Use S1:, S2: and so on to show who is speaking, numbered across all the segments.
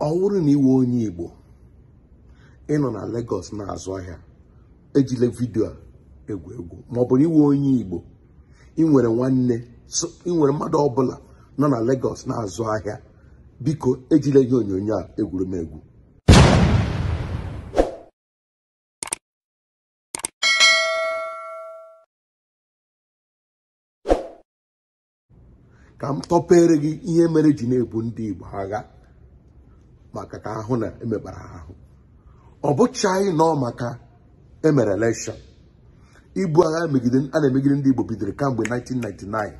S1: ọ bụrụ na iwe onye igbo ịnọ na Lagos na-azụ ahịa ejile vidio a egwu egwu ma ọ iwe onye igbo ịnwere nwanne ịnwere mmadụ ọbụla nọ na Lagos na-azụ ahịa biko ejila ihe onyonyo a egwurumegwu ka m tọpere gị ihe mere ji na-ebu ndị igbo agha maka ka ahụ na emekpara ahụ ọ bụchaghị nọ maka emere elekshọn ibu agha a na-emegide ndị Igbo bidoro kamgbe 1999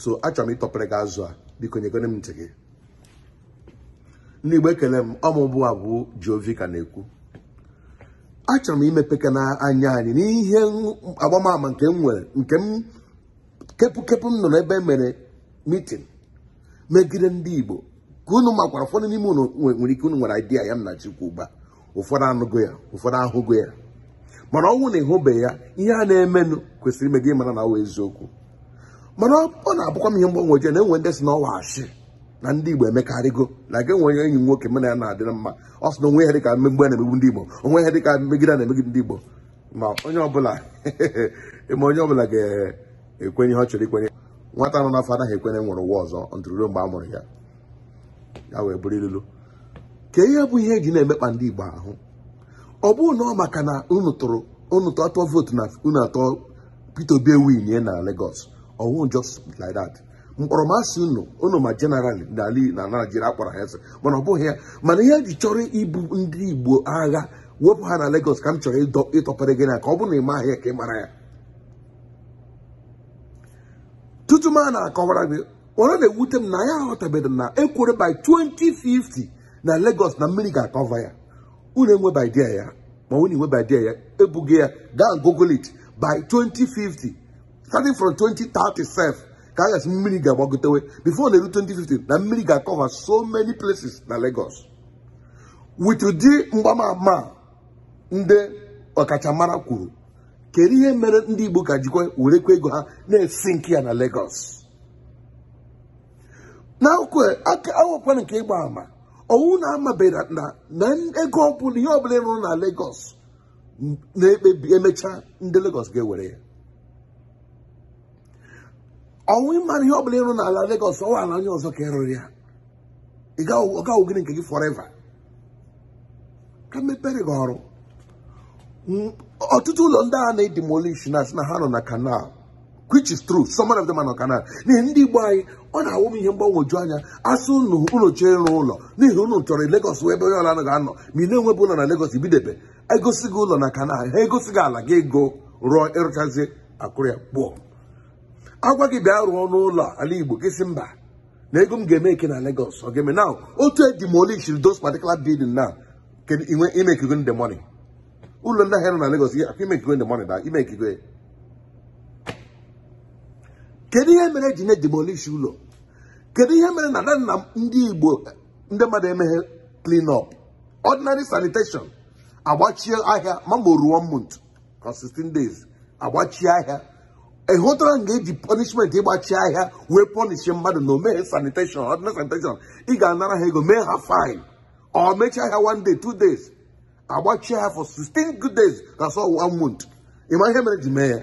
S1: so achọrọ m ịtọpere gị azụ a biko nyegone m ntị gị ndị Igbo ekele m ọmụbụ abụ Jiovi ka na-ekwu achọrọ m imepe na anya anyị n'ihe agbamama nke m nwere nke m kepụkepụ m nọ n'ebe emere mitin megide ndị Igbo ka unu makwara ụfọdụ n'ime unu nwere ike unu nwere idea ya nna chukwu ugbu ụfọdụ anụgo ya ụfọdụ ahụgo ya mana ọnwụ na ịhụbeghị ya ihe a na-emenụ kwesịrị ime gị mara na awa eziokwu mana ọ na-abụkwa m ihe mgbanweje na enwe ndị si na ọwa achị na ndị igbo emekarịgo e na ga enwe enyi nwoke mana ya na-adịrị mma ọ sị na onwe ya dịka mmegbu a na-emegbu ndị igbo onwe ya dịka mmegide na-emegide ndị igbo ma onye ọbụla ma onye ọbụla ga-ekwenye ihe ọ chọrọ ikwenye nwata nọ n'afọ anaghị ekwenye nwere ụwa ọzọ ntụrụruo mgbe a mụrụ ya ya wee bụrụ ilulu ka ihe bụ ihe eji na-emekpa ndị Igbo ahụ ọ bụrụ na ọ maka na unu tụrụ atọ vootu na unu atọ Peter Obi ewinye na Lagos ọwụ just like that mkpọrọmasị unu unu ma jeneral na Naijiria akpọrọ ha eze mana ọ bụghị ya mana ihe ji chọrọ ibu ndị Igbo agha wepụ ha na Lagos ka m chọrọ ịtọpere gị na ka ọ bụ na ị maghị ya ka ị mara ya tutu m a na-akọwara gị ọ na-ewute m na ya aghọtabeghị na ekwere by 2050 na Lagos na mmiri ga-akọva ya unu by idea ya ma unu by idea ya ebughị ya gaa google it by 2050 starting from 2030 ka a gasị mmiri ga-agbagotewe before na-eru 2050 na mmiri ga-akọva so many places na Lagos with ụdị mgbamama ndị ọkachamara kwuru kedu ihe mere ndị Igbo gajikwa jikwa werekwa ego ha na-esi nke ya na Lagos na aka awụkwana nke ịgba ama owu na-amabera na ego ọbụla ihe ọbụla ịrụ na Lagos na-ekpebi emechaa ndị Lagos ga-ewere ya ọnwụ ịmara ihe ọbụla ịrụ n'ala Lagos ọwa ala onye ọzọ ka ịrụrụ ya ọ gaghị gịnị nke gị forever ka mepere gị ọrụ ọtụtụ ụlọ ndị agha na-edimolish na asị na ha nọ na kanal which is true some of them are not canal n'ihi ndị igbo anyị ọ na-awụ m ihe mgbanwoju anya asụ unu chee ịrụ ụlọ n'ihi unu chọrọ Lagos ebe onye ọla ga-anọ ma ị na-enwebụ ụlọ na Lagos ibidobe egosi gị ụlọ na kana ha egosi gị ala gị ego rụọ ịrụchazi akụrịa kpụọ agwa gị bịa rụọ n'ụlọ ala igbo gị si mba na ego m ga-eme eke na legos ọ ga-eme now otu edemolish those patikula building now imekigwe ndị money ụlọ ndị ahịa nọ na Lagos imekigwe ndị money na kedu ihe mere eji na-edemolish ụlọ kedu ihe mere na nna ndị igbo ndị mmadụ emeghe clean up ordinary sanitation agbachie ahịa mambo ruo mont na 16 days agbachie ahịa ịhụtara hụtara nga eji punishment ịgbachi ahịa wee pọnishi mmadụ na omeghe sanitation ordinary sanitation ị ga-anara ha ego mee ha fine ọ mechie ahịa one day two days agbachie ahịa for 16 good days na one month ịma ihe mere ji mee ya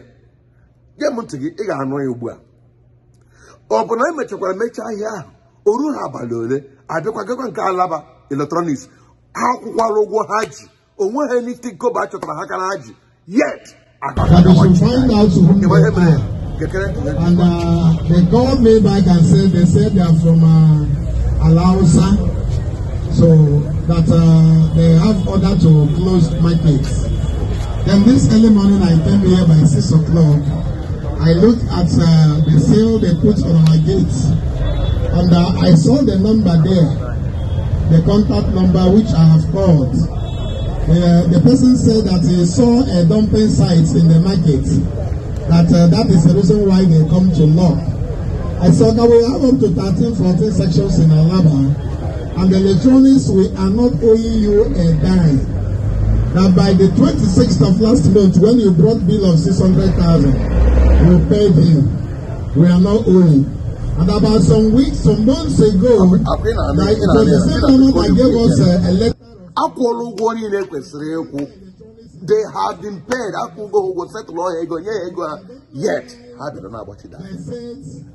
S1: nye m ntị gị ị ga-anụ ya ugbu a ọ emechakwara na anyị mechakwara mecha ahịa ahụ o ruo ha abalị ole abịakwagakwa nke alaba eletrọniks ha akwụkwara ụgwọ ha ji onwe ha niti koba a chọtara ha kara ha ji yet And uh, they call me back and say they say they are from uh, Alausa, so that uh, they have order to close markets. Then this early morning I came here by six o'clock I looked at uh, the seal they put on our gates, and uh, I saw the number there, the contact number which I have called. Uh, the person said that he saw a dumping site in the market, that uh, that is the reason why they come to lock. I said that we have up to 13, 14 sections in Alaba, and the electronics, we are not owing you a dime. That by the 26th of last month, when you brought bill of 600,000, we paid him. We are not owing. And about some weeks, some months ago, it was the same gave us a, uh, a letter. akwụọla ụgwọ niile kwesịrị ịkwụ they have been paid akwụgo ụgwọ setụl ọhịa ego nye ya ego ha uh, yet ha bịara na-agbachida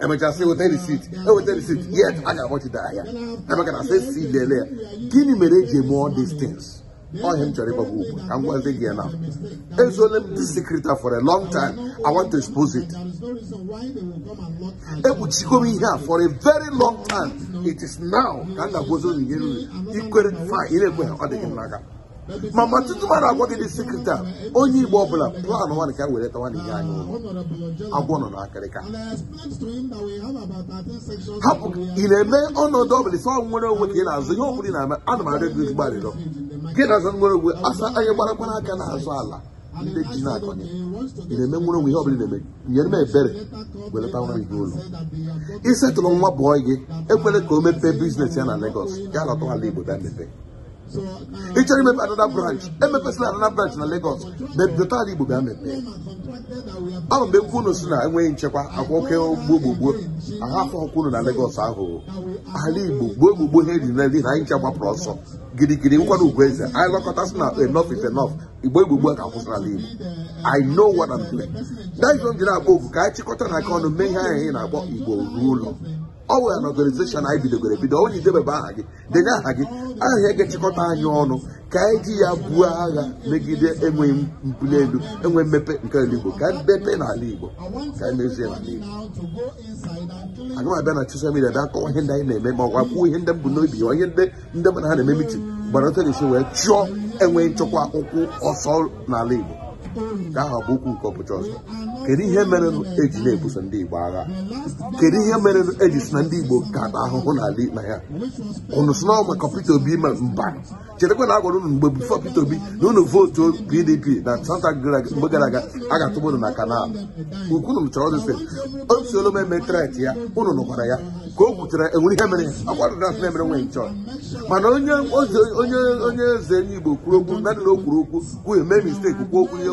S1: emechasị weta risit eweta yet ha ga-agbachida ahịa emeka na lele ya gịnị mere eji eme all these onye m chọrọ ịgbagwo ugwu ka m gị ya m secret for a long time i want to expose it ihe a for a very long time it is now ka ga-agwazi nri ikwere fa na ọ n'aka ma ma gị onye Igbo ọbụla plan ka were tawa n'ihe anyị ụlọ agwọ nọ ị na-eme ọnọdụ ọbụla nwere onwe na-azụ ihe ọ bụla na gị na aza nwere ogwe asa anya gbaragbara aka na-azụ ala ndị ji na-akọnye ị na-eme nwere onwe ihe ọ bụla na-eme nyere m ebere welata nwa gị ụlọ ịsetụrụ nwa bụọ gị ekwere ka o mepee biznes ya na Lagos ya lọtara ala Igbo bịa mepee ị chọrọ imepe anada branch emepesịla anada branch na Lagos bebidotala Igbo bịa mepee ahụ mgbe nkwu unu si na enweghị nchekwa akwa oke gbogbogboo ahafọ ọkwụnu na Lagos ahụ ala Igbo gboo gbogbo ha eri nri na anyị nche gbapụrụ ọsọ girigiri nkwado ugwueze anyị lọkọta sị na enough is enough igbo igbogbo ka akwụsịrị ala Igbo I know what I'm doing that is m ji akpọ ofu ka anyị chịkọta na aka ọnụ mee ihe anyị na-akpọ Igbo ruo ụlọ ọ were na ọganizeshọn anyị bidogoro ebido onye idebebe aha gị denye aha gị aha ga-echịkọta anyị ọnụ ka anyị ji ya buo agha megide enweghị mbuli elu enwe mmepe nke ala igbo ka mmepe n'ala igbo ka mezie n'ala igbo aga m abịa na soshal midia bịa kọwa ihe ndị anyị na-eme ma ọgwa kwuo ihe ndị m n'obi ya ihe ndị ndị mmadụ ha na-eme mitin gbara otu na-esi wee chụọ enweghị nchekwa akwụkwọ ọsọ n'ala igbo ka aha bụ okwu nke ọbụcha ọzọ kedu ihe mere eji na-ebuso ndị igbo agha kedu ihe mere eji si na ndị igbo ka na ahụhụ n'ala ikpe ya ụnụ si n'ọma ka Peter Obi ma mba chetakwa na agwara unu mgbe bifo Peter Obi na unu vootu PDP na santa mgbe gara aga a ga-atụba unu na kanal ukwunu chọrọ o si olu eme tret ya unu nụkwara ya ka o gwuchara enwere ihe mere akwarụna asị na-emere nwanyị chọọ mana onye eze onye Igbo kwuru okwu na dị o kwuru okwu kwuo mee misteki kwuo okwu ihe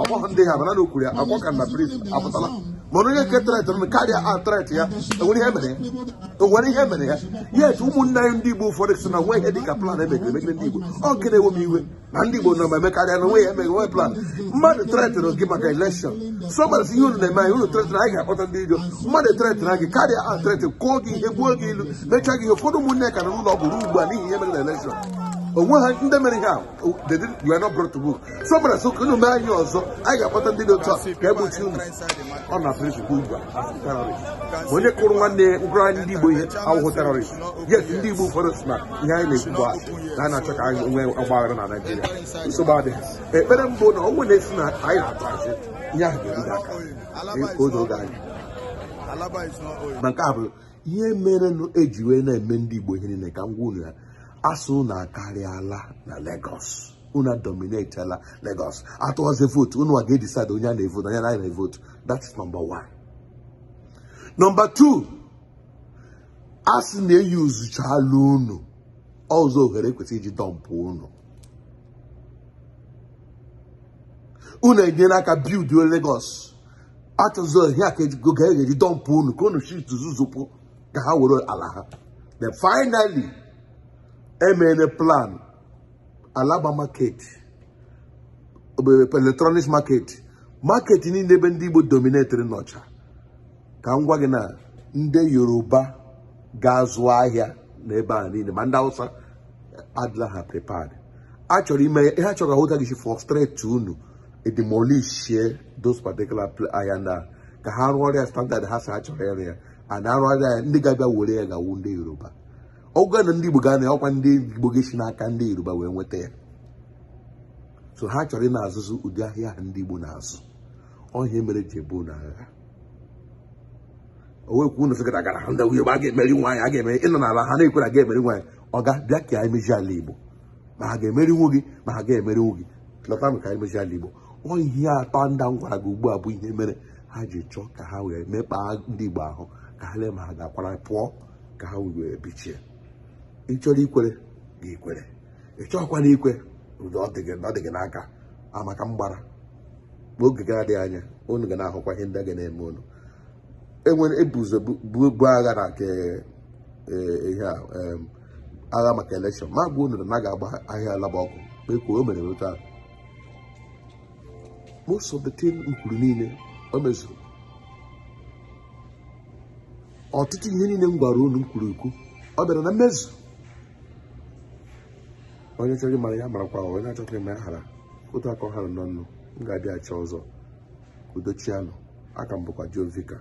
S1: okwu ndị ha mana na okwuru ya akwa ka na brit apụtala mana onye nke tret nụ karịa atret ya enwere ihe e mere ya yes ụmụnne anyị ndị igbo ụfọdụ si na nwe ihe dị ka plan emegere emegere ndị igbo ọ nke na-ewe m iwe na ndị igbo nọ ma emekarịa na nwe ya emeghe nwe plan mmadụ tretịrị gị maka elekshọn so si ihe unu na-eme anyị unu tretịrị anyị ga-akpọta ndị iro mmadụ tretịrị gị karịa atret kụọ gị ihe gbuo gị ilu mechaa gị ihe ụfọdụ ụmụnne ka na ụlọ ọgwụ ruo ugbu a n'ihi ihe mere na onwe ha ndị mere ihe a you are not brought to work so gbara so ka mee anyị ọzọ anyị ga-akpọta ndị dị otu a ka egbochi unu ọ na prịnsịpụ ugbu a onye kụrụ nwanne ngwara ndị Igbo ihe awụhụ terọrist yes ndị Igbo ụfọdụ si na ihe anyị na-ekwu bụ na a na-achọ ka anyị nwee ọgbaghara na Naijiria nsogbu adịghị ekpere mbụ na ọnwụ na-esi na anyị na-atụ asị ihe ahụ ga-eruga aka oge oge anyị na nke a bụ ihe mere eji wee na-eme ndị Igbo ihe niile ka m gwa unu ya asụ unu akarịala na Lagos unu dominatela Lagos atụọzi vootu unu a ga-edeside onye a na-evotu onye na na-evotu that's number one number two asị na-eyi uzuchala unu ọzọ ohere ekwesị iji dọmpụ unu unu enyela aka bild Lagos atụzụ ihe a ka e ga-eji dọmpụ unu ka unu shit zuzupụ ka ha were ala ha then finally emere plan alaba market electronics market market niile ebe ndị igbo dominetiri n'ọcha ka m gwa gị na ndị yoruba ga-azụ ahịa n'ebe a niile ma ndị hausa adịla ha prepared a chọrọ ime ihe a chọrọ ahụta gị si frustrate unu edemolishie those particular ahịa ndị a ka ha rụọrọ ya standard ha sa ha chọrọ ịrụ ya a na-arụgharị ya ndị ga-abịa were ya gawu ndị yoruba ọgụ na ndị Igbo ga na ya ọkwa ndị Igbo ga-esi n'aka ndị Yoruba wee nweta ya so ha chọrọ ị na-azụzụ ụdị ahịa ahụ ndị Igbo na-azụ ọhịa mere ji ebu na agha owekwu na gara gara ndị a ga-emeri nwaanyị a ga-emeri ịnọ n'ala ha na-ekwere ga emeri nwaanyị ọ ga bịa ka anyị meji ala Igbo ma ha ga-emerinwu gị ma ha ga-emerinwu gị lọta m ka anyị ala Igbo ọ ihe atọ ndị m gwara gị ugbu a bụ ihe mere ha ji chọọ ka ha wee mekpaa ndị Igbo ahụ ka ha lee ma ha ga-akwara pụọ ka ha wee bichie ịchọrọ ikwere gị ikwere ị chọghịkwara ikwe ọ dị gị n'aka amaka mgbara oge ga dị anya unu ga na-ahụkwa ihe ndị a ga na-eme unu enwere ebuzo bu agha na nke e, ihe a agha maka elekshọn ma gwa unu na na ga-agba ahịa alaba ọkụ ekwu o mere nweta ahụ most of the thing m niile o mezuru ọtụtụ ihe niile m gwara unu m kwuru ukwu ọ bịara na mmezu onye chọrọ ịmara ya marakwa onye na-achọghị ịma ya hara otu aka ọ nọ n'ọnụ m ga achọ ọzọ udochianụ aka m bụkwa Joe Vicar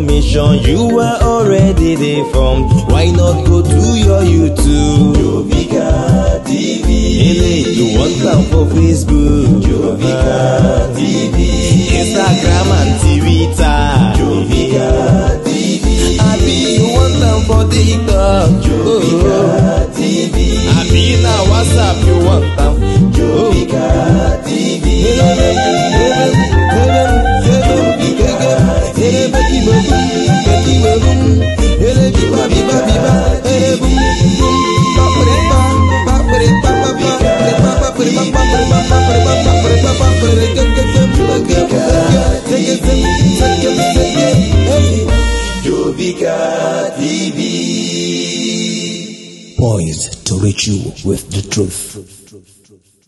S1: Mission, you were already there from. Why not go to your YouTube? Jovika TV. Eléyìí wọ́n gbà fún Facebook. Jovika. you with the truth.